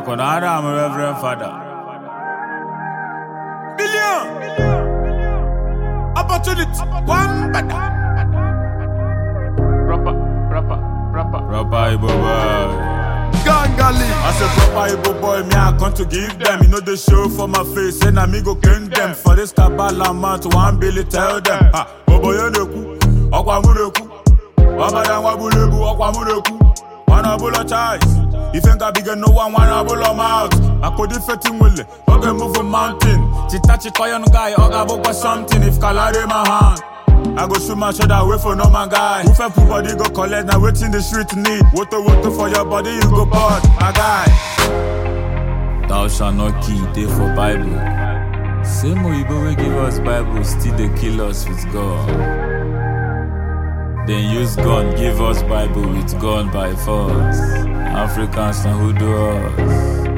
Akon Adam, Reverend fada Billion! Opportunity. One bada Proper, proper, proper. Proper Ibo boy. Gangali. I said proper Ibo boy, me I come to give them. You know the show for my face, and I'm go king them. For this Kabbalah month, one Billy tell them. Ha, Bobo Yoneku, Okwamureku. Baba Dangwabulebu, Okwamureku. One of bullet eyes. ife nga bige n'ụwa nwanyị ọbụla maut akụdị feti i oge move mountain chita chikoyon guy ọ ga-abụkwa something if kalari ma hand I go shoot my shoulder away for normal guy. Who fell body go collect now waiting the street need. Woto woto for your body you go burn, my guy. Thou shalt not kill, day for Bible. Same Oyibo we give us Bible, still they kill us with God. Then use gun, give us Bible with gun by force. Africans and who do us.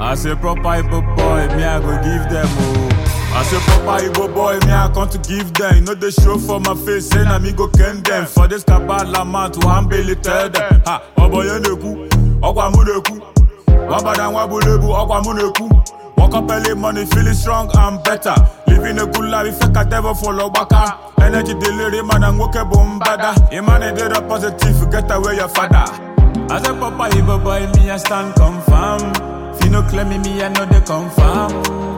As a proper Igbo boy, me I go give them oh. As a proper Igbo boy, me I come to give them. You know they show for my face, say na me go ken them. For this kabbalah man to humbly tell them. Ha, oboyeneku, okwamuneku. Wabadan wabulebu, okwamuneku. Woke up early money, feeling strong and better. Living a good life, if I can follow back. energy delivery man and nwoke bụ mbada ịmana ịdịrọ positive get away your father aze papa iboboy mi ya stand confirm fino claim mi ya no dey confirm